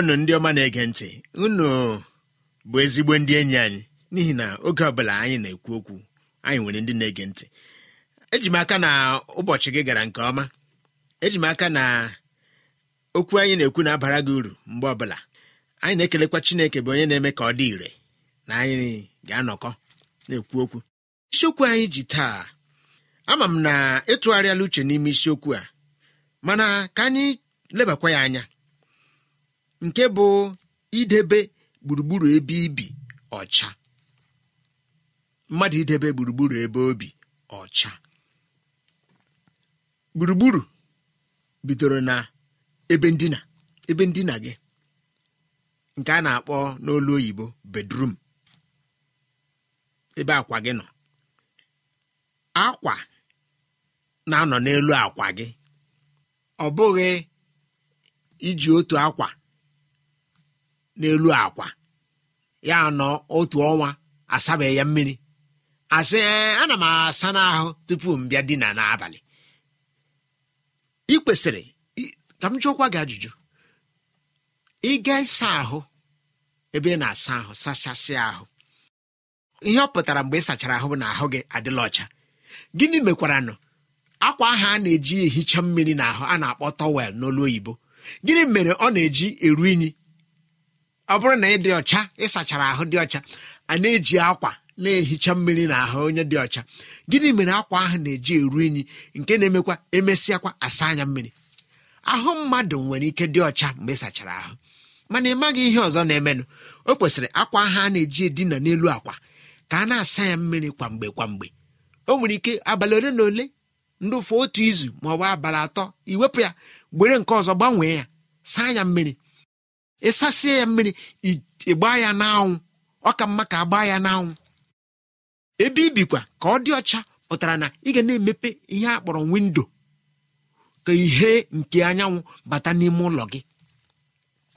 ndewo ndị ọma na-ege ntị unu bụ ezigbo ndị enyi anyị n'ihi na oge ọbụla anyị na-ekwu okwu anyị nwere ndị na-ege ntị eji m aka na ụbọchị gị gara nke ọma eji m aka na okwu anyị na-ekwu na-abara gị uru mgbe ọbụla anyị na-ekelekwa Chineke bụ onye na-eme ka ọ dị ire na anyị ga-anọkọ na-ekwu okwu isiokwu anyị ji taa ama m na ịtụgharịala uche n'ime isiokwu a mana ka anyị lebakwa ya anya nke bụ idebe gburugburu ebe ibi ọcha mmadụ idebe gburugburu ebe obi ọcha gburugburu bidoro na ebe ndina ebe ndina gị nke a na-akpọ n'olu oyibo bedrum ebe akwa gị nọ akwa na-anọ n'elu akwa gị ọ bụghị iji otu akwa n'elu akwa ya nọ otu ọnwa asabeghị ya mmiri asị ana m asa n'ahụ tupu m bịa dina n'abalị ị kwesịrị ka m jụọkwa gị ajụjụ ị ga ịsa ahụ ebe ị na-asa ahụ sachasị ahụ ihe ọ pụtara mgbe ị sachara ahụ bụ na ahụ gị adịla ọcha gịnị mekwaranụ akwa ahụ a na-eji ehicha mmiri n'ahụ a na-akpọ tọwel n'olu oyibo gịnị mere ọ na-eji eru unyi ọ bụrụ na ị dị ọcha ịsachara ahụ dị ọcha a na-eji akwa na-ehicha mmiri na ahụ onye dị ọcha gịnị mere akwa ahụ na-eji eru unyi nke na-emekwa emesịakwa asa anya mmiri ahụ mmadụ nwere ike dị ọcha mgbe ịsachara ahụ mana ị maghị ihe ọzọ na-emenụ o kwesịrị akwa ahụ a na-eji edina n'elu akwa ka a na-asa ya mmiri kwamgbe kwamgbe o nwere ike abalị ole na ole ndị otu izu ma ọ bụ abalị atọ iwepụ ya gbere nke ọzọ gbanwee ya saa ya mmiri ịsasie ya mmiri ịgbaa ya n'anwụ ọ ka mma ka agbaa ya n'anwụ ebe ibikwa ka ọ dị ọcha pụtara na ị ga na-emepe ihe a kpọrọ windo ka ihe nke anyanwụ bata n'ime ụlọ gị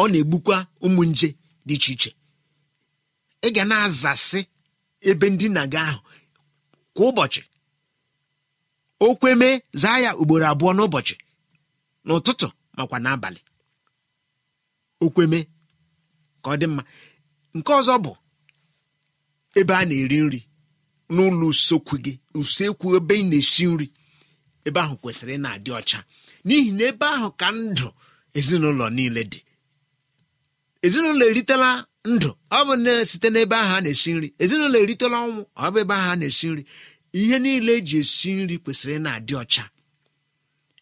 ọ na-egbukwa ụmụ nje dị iche iche ị ga na-azasị ebe ndina gị ahụ kwa ụbọchị okweme zaa ya ugboro abụọ n'ụbọchị n'ụtụtụ makwa n'abalị okweme ka ọ dị mma nke ọzọ bụ ebe a na-eri nri n'ụlọ usekwu gị usekwu ebe ị na-esi nri ebe ahụ kwesịrị ị na-adị ọcha n'ihi na ebe ahụ ka ndụ ezinụlọ niile dị ezinụlọ eritela ndụ ọ bụ site n'ebe ahụ a na-esi nri ezinụlọ eritela ọnwụ ọ bụ ebe ahụ a na-esi nri ihe niile eji esi nri kwesịrị ị na-adị ọcha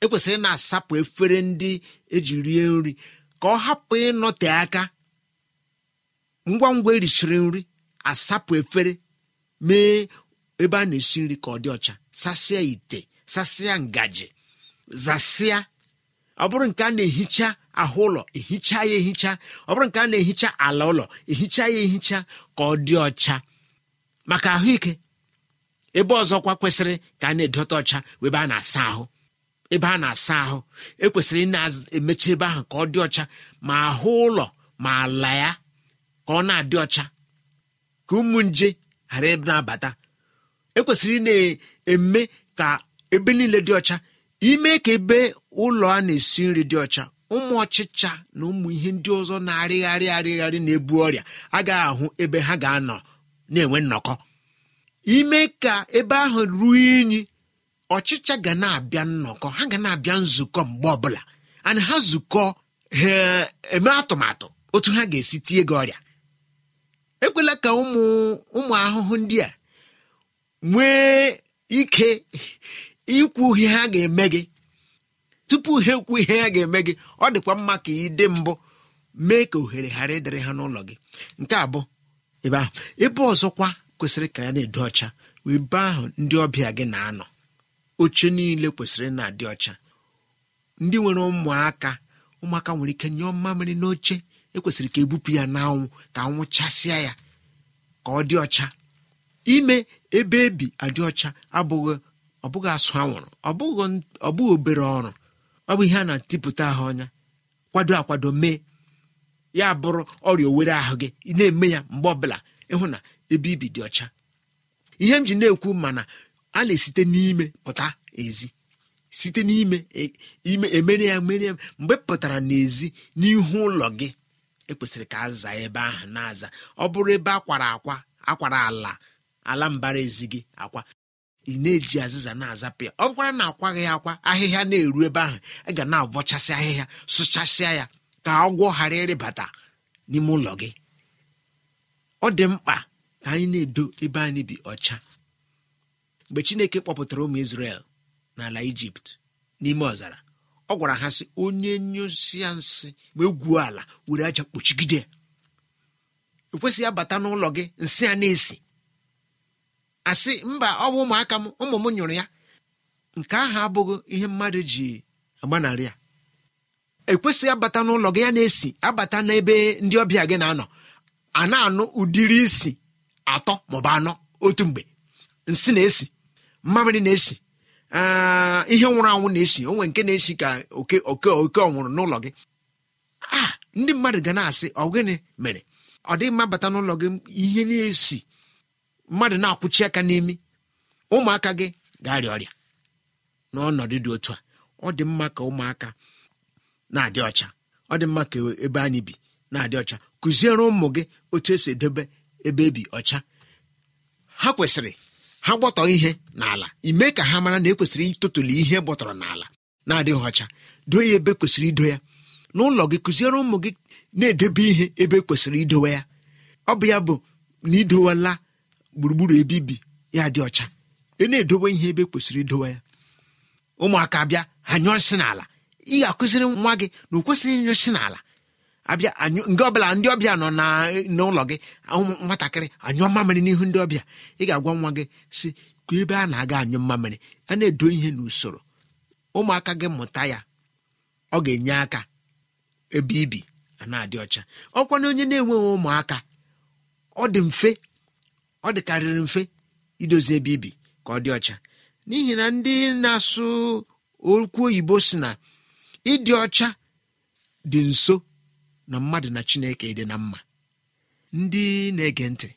ekwesịrị na-asapụ efere ndị eji rie nri ka ọ hapụ ịnọte aka ngwa ngwa erichiri nri asapụ efere mee ebe a na-esi nri ka ọ dị ọcha sasịa ite sasịa ngaji zasịa ọ bụrụ nke a na-ehicha ahụ ụlọ ehicha ya ehicha ọ bụrụ nke a na-ehicha ala ụlọ ehicha ya ehicha ka ọ dị ọcha maka ahụike ebe ọzọkwa kwesịrị ka a na-edote ọcha ebe a na-asa ahụ ebe a na-asa ahụ ekwesịrị ị na-emechi ebe ahụ ka ọ dị ọcha ma ahụ ụlọ ma ala ya ka ọ na-adị ọcha ka ụmụ nje ghara ebe na-abata ekwesịrị ị na-eme ka ebe niile dị ọcha ime ka ebe ụlọ a na-esi nri dị ọcha ụmụ ọchịcha na ụmụ ihe ndị ọzọ na-arịgharị arịgharị na-ebu ọrịa agaghị ahụ ebe ha ga-anọ na-enwe nnọkọ ime ka ebe ahụ ruo unyi ọchịcha ga na-abịa nnọkọ ha ga na-abịa nzukọ mgbe ọbụla ana ha zukọ ha eme atụmatụ otu ha ga-esi tie gị ọrịa ekwela ka ụmụ ahụhụ ndị a nwee ike ikwu ihe ha ga-eme gị tupu ha ekwu ihe ha ga-eme gị ọ dịkwa mma ka ị dị mbụ mee ka ohere ghara ịdịrị ha n'ụlọ gị nke abụ ebe ahụ ebe ọzọkwa kwesịrị ka ya na-edo ọcha wee ebe ahụ ndị ọbịa gị na-anọ oche niile kwesịrị na-adị ọcha ndị nwere ụmụaka ụmụaka nwere ike nyụọ mmamịrị n'oche ekwesịrị ka ebupụ ya n'anwụ ka anwụ chasịa ya ka ọ dị ọcha ime ebe ebi adị ọcha abụghị bụghị asụ anwụrụ ọ bụghị obere ọrụ ọ bụ ihe a na-atịpụta ahụ ọnya kwado akwado mee ya bụrụ ọrịa owere ahụ gị na-eme ya mgbe ọbụla ịhụ na ebe ibi dị ọcha ihe m ji na-ekwu mana a na-esite n'ime pụta ezi site n'ime e, ime emere ya mere ya mgbe pụtara n'ezi n'ihu ụlọ gị ekwesịrị ka aza ebe ahụ na-aza ọ bụrụ ebe akwara akwa akwara ala ala mbara ezi gị akwa ị na-eji azịza na-azapụ ya ọ bụkwara na akwaghị akwa ahịhịa na-eru ebe ahụ ị ga na-avọchasị ahịhịa sụchasịa ya ka ọgwọ ghara ịrịbata n'ime ụlọ gị ọ dị mkpa ka anyị na-edo ebe anyị bi ọcha mgbe chineke kpọpụtara ụmụ isrel n'ala ijipt n'ime ọzara ọ gwara ha sị onye nyụsịa nsị ma egwuo ala were aja kpuchigide ekwesịghị abata n'ụlọ gị nsị a na-esi asị mba ọ bụ ụmụaka m ụmụ m nyụrụ ya nke ahụ abụghị ihe mmadụ ji agbanarị ya ekwesịghị abata n'ụlọ gị ya na-esi abata n'ebe ndị ọbịa gị na-anọ a na-anụ ụdịrị isi atọ maọbụ anọ otu mgbe nsị na-esi mmamịrị na-esi ihe nwụrụ anwụ na-esi onwe nke na-esi ka oke oke oke ọnwụrụ n'ụlọ gị a ndị mmadụ ga na-asị ọ gịnị mere ọ dịghị mma bata n'ụlọ gị ihe na-esi mmadụ na-akwụchi aka n'imi ụmụaka gị ga-arịa ọrịa n'ọnọdụ dị otu a ọ dị mma ka ụmụaka na-adị ọcha ọ dị mma ka ebe anyị bi na-adị ọcha kụziere ụmụ gị otu esi edobe ebe ebi ọcha ha kwesịrị ha gbọtọ ihe n'ala ime ka ha mara na ekwesịrị ịtụtụli ihe gbọtọrọ n'ala na-adịghị ọcha doo ya ebe e kwesịrị ido ya n'ụlọ gị kụziere ụmụ gị na-edebe ihe ebe e kwesịrị idowe ya ọ bụ ya bụ na idowela gburugburu ebe ibi ya dị ọcha ị e na-edowe ihe ebe kwesịrị idowe ya ụmụaka bịa ha nyụọ nsị n'ala ị ga-akụziri nwa gị na o kwesịghị ịnyụsị n'ala abịa anyụ ndị ọbụla ndị ọbịa nọ n'ụlọ gị nwatakịrị anyụ mmamịrị n'ihu ndị ọbịa ị ga-agwa nwa gị si ka ebe a na-aga anyụ mmamịrị a na-edo ihe n'usoro ụmụaka gị mụta ya ọ ga-enye aka ebe ibi na-adị ọcha ọkwa onye na-enweghị ụmụaka ọ dị mfe ọ dịkarịrị mfe idozi ebe ibi ka ọ dị ọcha n'ihi na ndị na-asụ okwu oyibo si na ịdị ọcha dị nso na mmadụ na chineke dị na mma ndị na-ege ntị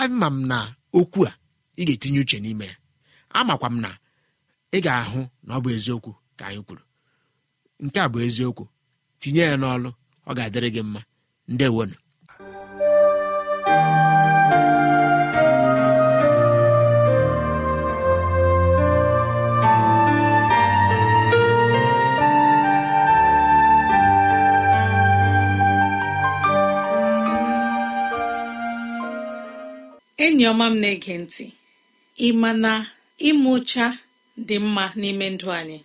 ama m na okwu a ị ga-etinye uche n'ime ya amakwa m na ị ga-ahụ na ọ bụ eziokwu ka anyị kwuru nke a bụ eziokwu tinye ya n'ọlụ ọ ga-adịrị gị mma ndewonu enyi ọma m na-ege ntị ị ma na ime ụcha dị mma n'ime ndụ anyị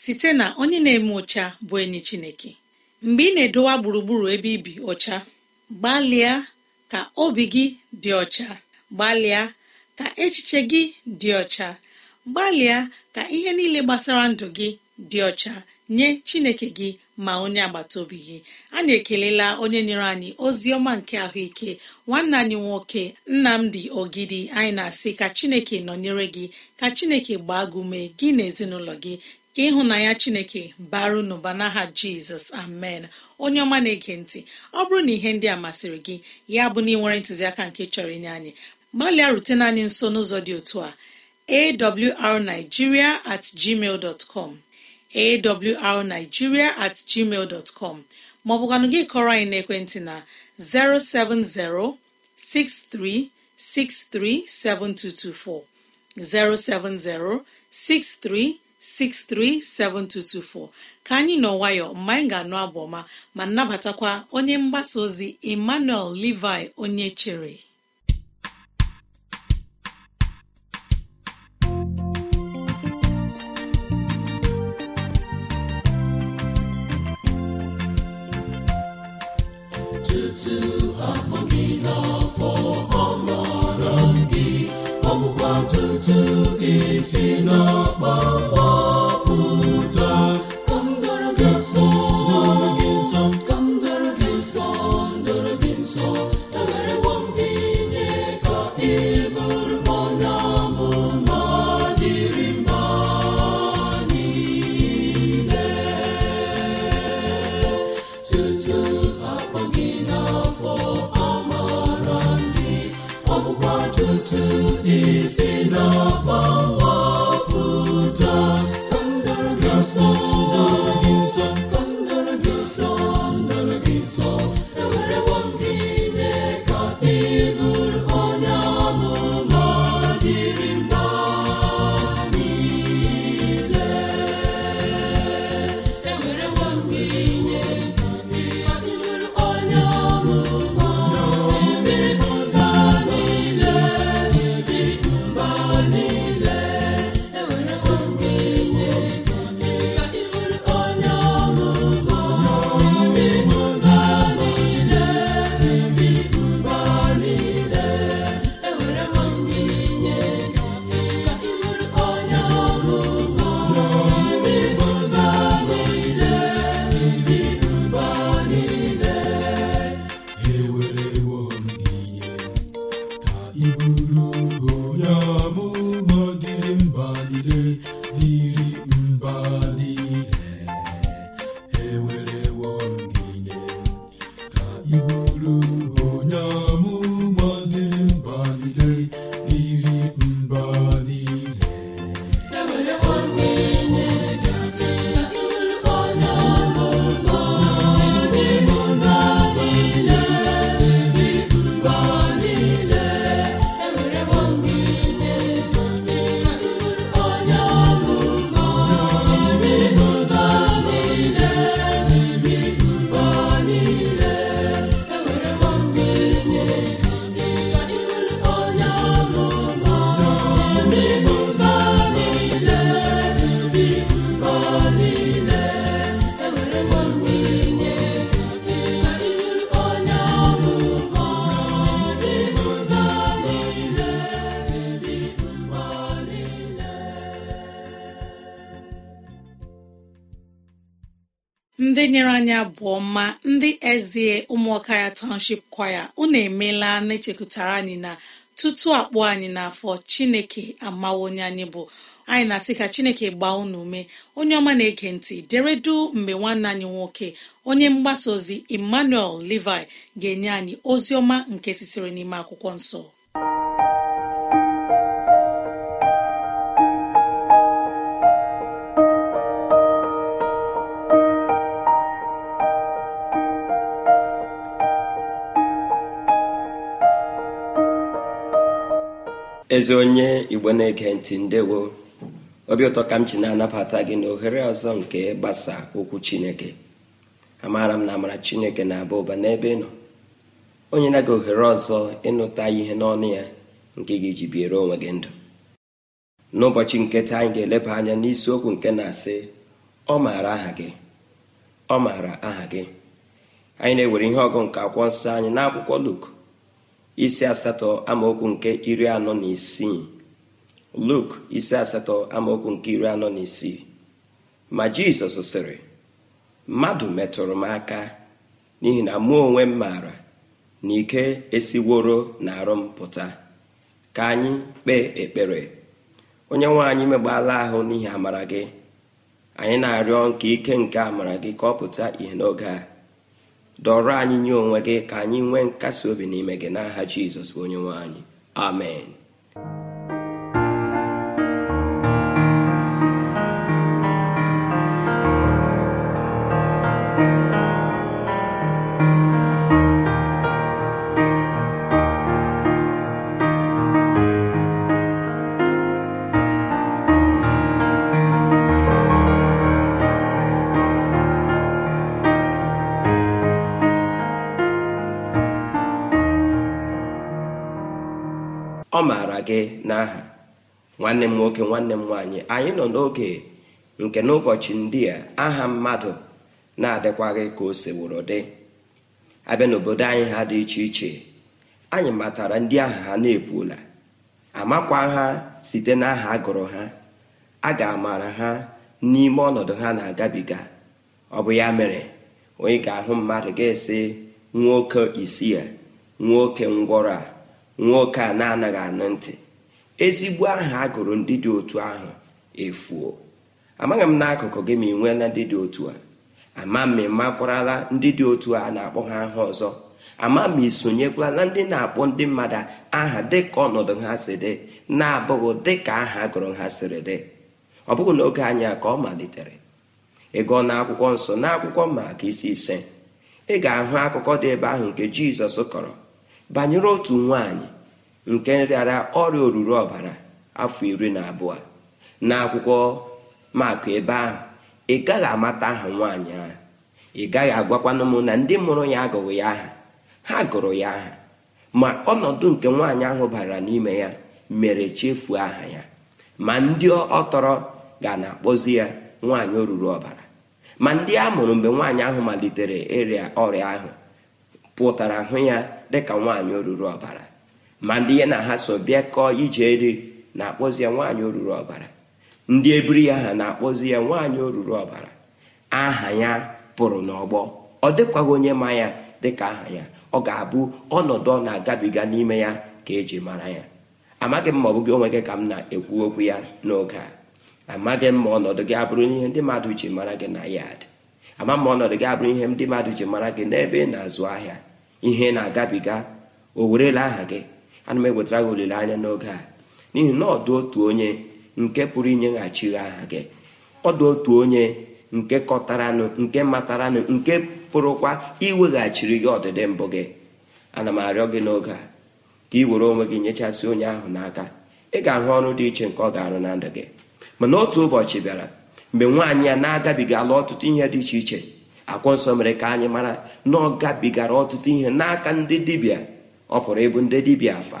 site na onye na-eme ụcha bụ enyi Chineke mgbe ị na-edowa gburugburu ebe ibi ụcha, gbalịa ka obi gị dị ọcha gbalịa ka echiche gị dị ọcha gbalịa ka ihe niile gbasara ndụ gị dị ọcha nye Chineke gị ma onye agbata obi gị anyị ekelela onye nyere anyị ozi ọma nke ahụike nwanne anyị nwoke nnamdi ogidi anyị na-asị ka chineke nọnyere gị ka chineke gbaa gị gị na ezinụlọ gị ka ịhụnanya chineke baru n'ụba n'aha jizọs amen onye ọma na-ege ntị ọ bụrụ na ihe ndị a masịrị gị ya bụ na ị nwere ntụziaka nke chọrọ inye anyị gbalịa rutena anyị nso n'ụzọ dị otu a awrnigeria at gmail dot com awrnigeria at gmail dọtcọm maọbụkwanụ gị kọrọ anyị n'ekwentị na 07063637224 07063637224 ka anyị nọ nwayọ mgbe anyị ga-anụ abụ ọma ma nabatakwa onye mgbasa ozi emmanuel levi onye chere si ọma ndị ezie ụmụaka ya township kwaya unu emela na-echekụtara anyị na tutu akpụ anyị n'afọ chineke amawo onye anyị bụ anyị na-asị ka chineke gbaa unu ume onye ọma na-ege ntị deredu mgbe nwanne anyị nwoke onye mgbasa ozi emmanuel levi ga-enye anyị ozi ọma nke sitere n'ime akwụkwọ nsọ ezi onye igbo na-ege ntị ndewo obi ụtọ ka m ji na-anabata gị na ohere ọzọ nke gbasa okwu chineke amaara m na amara chineke na-aba ụba n'ebe ị nọ onye na gị ohere ọzọ ịnụta ihe n'ọnụ ya nke ga-eji biere onwe gị ndụ n'ụbọchị nketa anyị ga-eleba anya n'isiokwu nke na-asị ọ maara aha gị ọ maara aha gị anyị na-ewere ihe ọgụ nke akwụkwọ nsọ anyị n'akwụkwọ Luk isi asatọ amaokwu nke iri anọ na isii luk isi asatọ amaokwu nke iri anọ na isii ma jizọs sịrị mmadụ metụrụ m aka n'ihi na mụ onwe m maara na ike esiworo na arụ m pụta ka anyị kpee ekpere onye nwe megbala ahụ n'ihi amara gị anyị na-arịọ nke ike nke amara gị ka ọ pụta ìhè n'oge a dọrọ anyị nye onwe gị ka anyị nwee nkasi obi n'ime gị n'aha Jizọs onye nwe anyị amen gị n'aha nwanne m nwoke nwanne m nwaanyị anyị nọ n'oge nke n'ụbọchị ndị a aha mmadụ na-adịkwaghị ka o seworo dị abịa n'obodo anyị ha dị iche iche anyị matara ndị aha ha na-epuola amakwa ha site n'aha agụrụ ha a ga-amara ha n'ime ọnọdụ ha na-agabiga ọ bụ ya mere onye ga-ahụ mmadụ ga-esi nwoke isi nwoke ngwọrọ a nwoke a na-anaghị anụ ntị ezigbo aha a gụrụ ndị dị otu ahụ efuo amaghị m n'akụkụ gị ma ị nweela ndị dị otu a ama ma ị makwarala ndị dị otu a na-akpọ ha aha ọzọ ama ma ị sonyekwala ndị na-akpọ ndị mmadụ aha dịka ọnọdụ ha si dị na-abụghị dịka aha gụrụ ha siri dị ọ bụghị n'oge anyị ka ọ malitere ịgụọ akwụkwọ nsọ n'akwụkwọ maka isi ise ị ga-ahụ akụkọ dị ebe ahụ nke jizọs kọrọ banyere otu nwanyị nke nrịara ọrịa oruru ọbara afọ iri na abụọ na akwụkwọ maka ebe ahụ ị gaghị amata aha nwaanyị ahụ ị gaghị agwakwana m na ndị mụrụ ya agụghị ya aha ha gụrụ ya aha ma ọnọdụ nke nwaanyị ahụ bara n'ime ya mere chefuo aha ya ma ndị ọ tọrọ ga na-akpọzi ya nwaanyị oruru ọbara ma ndị a mụrụ mgbe nwaanyị ahụ malitere ịrịa ọrịa ahụ pụtara hụ ya dịka nwaanyị oruru ọbara ma ndị ya na ha so bịa kọọ ije eri na-akpọzi ya nwaanyị oruru ọbara ndị ebiri ya ha na-akpọzi ya nwaanyị oruru ọbara aha ya pụrụ n'ọgbọ ọ dịkwaghị onye ma ya dịka aha ya ọ ga-abụ ọnọdụ ọ na-agabiga n'ime ya ka eji mara ya amaghị m ma ọ bụ gị onwe gị ka m na-ekwu okwu ya n'oge a amaghị m ma ọnọdụ gị abụrụ ihe ndị mmadụ ji mara gị na yad ama m ma ọnọdụ gị abụrụ ihe ndị mmadụ ji mara gị n'ebe ị na-azụ ahịa ihe na-agabiga o werela aha gị ana m ewetara gị olileanya n'oge a n'ihi na ọ otu onye nke pụrụ inyeghachi aha gị ọ otu onye nke kọtaranụ nke mataranụ nke pụrụkwa iweghachiri gị ọdịdị mbụ gị ana m arịọ gị n'oge a ka ị were onwe gị nyechasị onye ahụ n'aka ị ga-ahụ ọrụ dị iche nke ọ ga-arụ na ndụ gị mana otu ụbọchị bịara mgbe nwaanyị a na-agabiga ala ọtụtụ ihe dị iche iche akwọ nsọ mere ka anyị mara na ọ gabigara ọtụtụ ihe n'aka ndị dibịa ọ pụrụ ịbụ ndị dibịa afa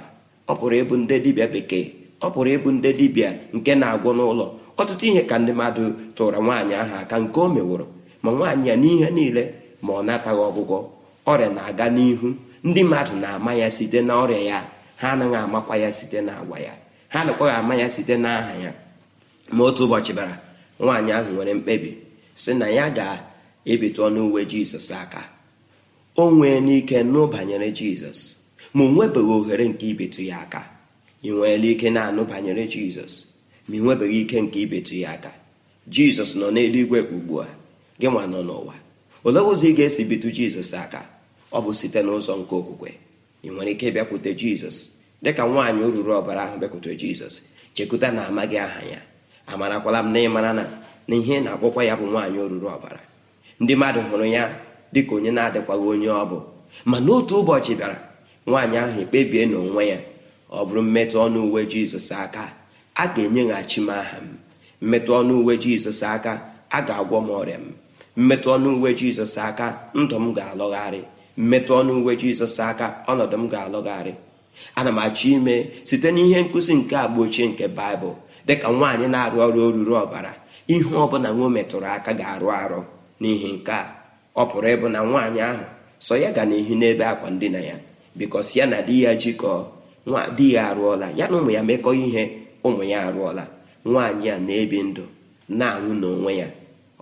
ọ pụrụ ịbụ ndị dibịa bekee ọ pụrụ ịbụ ndị dibịa nke na-agwọ n'ụlọ ọtụtụ ihe ka ndị mmadụ tụrụ nwaanyị ahụ aka nke o meworo ma nwaanyị ya n'ihe niile ma ọ nataghị ọgwụgwọ ọrịa na-aga n'ihu ndị mmadụ na-ama ya site na ọrịa ya ha anaghị amakwa ya site na agwa ya ha nakwaghị ama ya site na aha ya ma otu ụbọchị bara nwaanyị ahụ nwere mkpebi si na ya ga ebitụ ọnụ uwe jizọs aka o nwee n'ike nụ banyere jizọs ma o nwebeghị ohere nke ibetụ ya aka ị nweela ike na-anụ banyere jizọs ma ị nwebeghị ike nke ibetụ ya aka jizọs nọ n'eluigwe ugbu a gị nwa nọ n'ụwa olee ụzọ ị ga-esi bitu jizọs aka ọ bụ site n'ụzọ nke okwukwe ị nwere ike bịakwute jizọs dịka nwaanyị ruru ọbara ahụ bịakwutere jizọs chekwuta na amaghị aha ya amarakwala m na ịmara na na ihe na-akpọkwa ya bụ nwaanyị oruru ọbara ndị mmadụ hụrụ ya dịka onye na-adịkwaghị onye ọ bụ ma n'otu ụbọchị bịara nwaanyị ahụ ekpebie n'onwe ya ọ bụrụ mmetụ ọnụ uwe jizọs aka a ga-enyeghachi m aha m mmetụ ọnụ uwe jizọs aka a ga-agwọ m ọrịa m mmetụ ọnụ uwe jizọs aka ndụ m ga-alọgharị mmetụ ọnụ uwe jizọs aka ọnọdụ m ga-alọgharị ana m achọ ime site n'ihe nkụzi nke agba ochie nke baịbụl dịka nwaanyị na-arụ ọrụ oruru ọbara ihe ọ bụla metụrụ aka ga-arụ arụ n'ihi nke a ọ pụrụ ịbụ na nwaanyị ahụ sọ ya ga na-ehi n'ebe akwa ndina ya bikọs ya na di ya jikọọ di ya arụọla ya na ụmụ ya mekọ ihe ụmụ ya arụọla nwaanyị a na-ebi ndụ na-anwụ n'onwe ya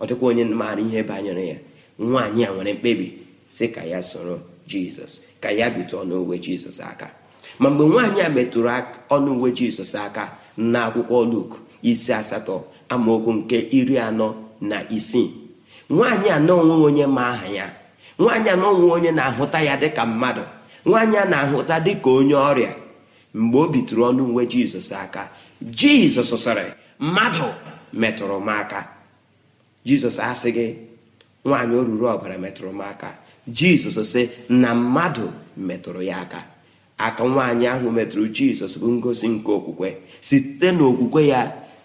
ọ dịkwa onye maara ihe banyere ya nwaanyị a nwere mkpebi si ka ya soro jizọs ka ya bitụọ n'uwe jizọs aka ma mgbe nwaanyị a metụrụ ọnụ uwe jizọs aka na akwụkwọ luk isi asatọ amaokwu nke iri anọ na isii nwaanyị a na onwe onye ma aha ya nwaanyị a na onwe onye na-ahụta ya dịka mmadụ nwaanyị a na-ahụta dịka onye ọrịa mgbe o bitụrụ ọnụ uwe jizọs aka jizọs sịrị mmadụ metụrụ m aka jizọs asịghị nwaanyị ruru ọbara metụrụ m aka jizọs sị na mmadụ metụrụ ya aka aka nwaanyị ahụ metụrụ jizọs bụ ngosi nke okwukwe site n'okwukwe ya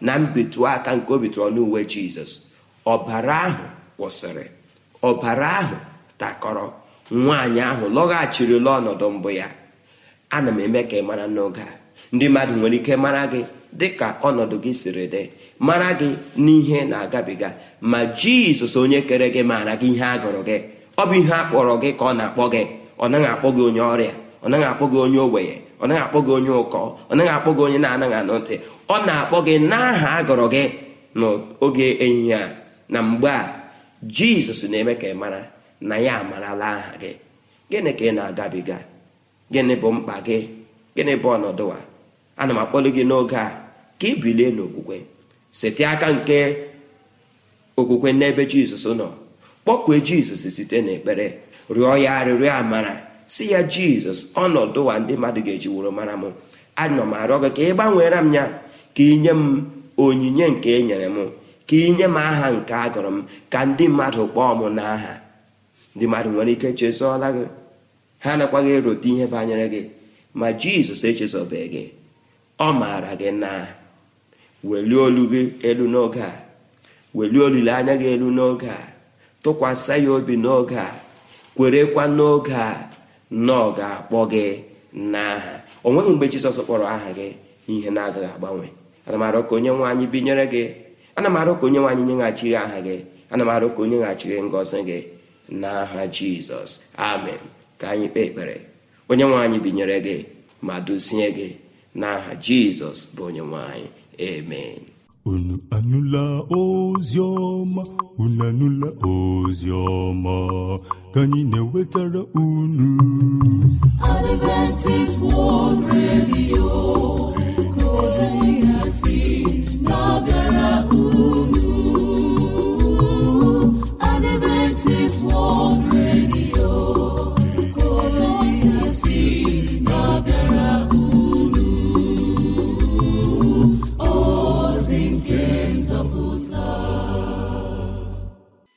na mbitụ aka nke obitụ ọnụ uwe jizọs ọbara ahụ kwụsịrị ọbara ahụ takọrọ nwaanyị ahụ lọghachirila ọnọdụ mbụ ya ana m eme ka ị mara n'oge a ndị mmadụ nwere ike mara gị dịka ọnọdụ gị siri dị mara gị n'ihe na-agabiga ma jizọs onye kere gị maara gị ihe a gụrụ gị ọ bụ ihe a kpọrọ gị ka ọ na-akpọ gị ọ naghị akpọ gị onye ọrịa ọ naghị akpọ gị onye ogbenye ọ naghị akpọ gị onye ụkọ ọ naghị akpọ gị onye na-anaghị anụ ntị ọ na-akpọ gị n'aha a gụrụ gị n'oge ehihie a na mgbe a jizọs na-eme ka ị mara na ya amarala aha gị gịnị ka ị na-agabiga gịnị bụ mkpa gị gịnị bụ ọnọdụ a ana m akpọlụ gị n'oge a ka ị bilie n'okwukwe site aka nke okwukwe n'ebe jizọs nọ kpọkue jizọs site n'ekpere rịọ ya arịrịọ amara si ya jizọs ọnọdụ a ndị mmadụ ga-eji wụrụ mara m ana m arịọ gị ka ị gbanweere m ya ka ị nye m onyinye nke e nyere m ka inye m aha nke a gụrụ m ka ndị mmadụ kpọọ m n'aha ndị mmadụ nwere ike chezọọla gị ha gị erote ihe banyere gị ma jizọs echezọbeghị gị ọ maara gị na welie olu gị elu n'oge a welie olileanya gị elu n'oge a tụkwasị ya obi n'oge a kwerekwa n'oge a na ọ ga-akpọ gị n'aha o nweghị mgbe jizọs kpọrọ aha gị ihe na-agaghị agbanwe ana m ka onye nwe anyị binyere gị ana m arụ ka onye nwanyị nye aha gị ana m arụ ka onye ghachi gị ngọzi gị n'aha jizọs amen ka anyị kpee ekpere onye nwanyị binyere gị ma dozie gị n'aha jizọs bụ onye nwanyị amen unu anụla ozi ọma unu anụla ozi ọma ka anyị na-ewetara unu Adventist World Radio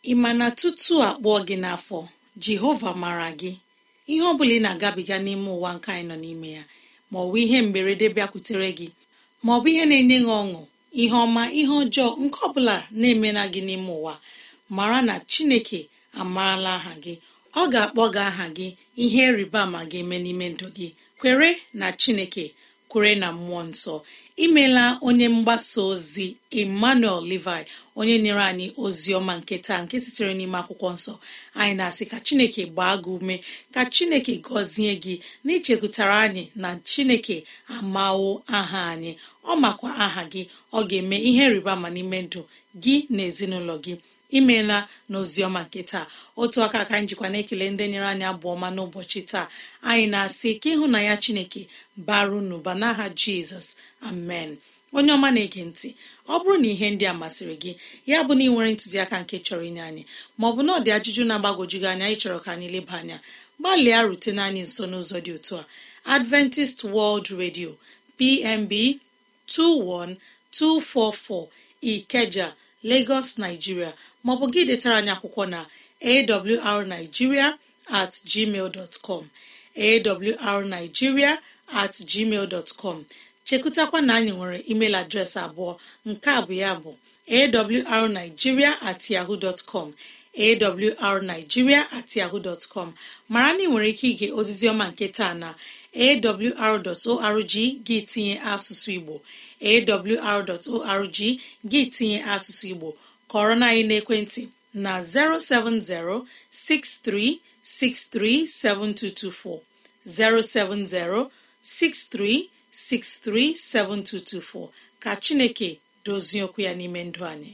ị ma na tutu a gị n'afọ jehova mara gị ihe ọ bụla ị na-agabiga n'ime ụwa nke anyị nọ n'ime ya ma ọ bụ ihe mberede bịakwutere gị ma ọ bụ ihe na-enye gị ọṅụ ihe ọma ihe ọjọọ nke ọbụla na-emena gị n'ime ụwa mara na chineke amaala aha gị ọ ga-akpọ gị aha gị ihe rịba ma ga-eme n'ime ndụ gị kwere na chineke kwere na mmụọ nsọ imela onye mgbasa ozi emmanuel levi onye nyere anyị ozi ọma nke taa nke sitere n'ime akwụkwọ nsọ anyị na-asị ka chineke gbaa gị ume ka chineke gọzie gị na anyị na chineke amawo aha anyị ọ makwa aha gị ọ ga-eme ihe rịba ma n'ime ndụ gị na ezinụlọ gị imeela n'oziọma nke taa otu aka ka njikwa na-ekele ndị nyere anyị abụ ọma n'ụbọchị taa anyị na-asị ka ịhụ na ya chineke baru n'ụba n'aha jizọs amen onye ọma na-ege ntị ọ bụrụ na ihe ndị a masịrị gị ya bụ na ị nwere ntụziaka nke chọrọ inye anyị maọbụ na ọdị ajụjụ na-agbagojugị anya ịchọrọ ka anyị leba anya gbalịa rutena anyị nso n'ụzọ dị otu a adventist world radio pmb 21244 ikeja Lagos Nigeria maọbụ gị detara anyị akwụkwọ na awrnigeria at gmail dot com awrnigeria at gmail dot com chekụtakwa na anyị nwere email adreesị abụọ nke a bụ ya bụ awrnigeria at yahoo dot com awrnigeria at yahoo com mara na ị nwere ike ige ozizi ọma nke taa na awr.org gị tinye asụsụ Igbo awr.org gị tinye asụsụ igbo kọrọ na anyị n'ekwentị na 07063637224 07063637224 ka chineke dozie okwu ya n'ime ndụ anyị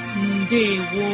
Ndewo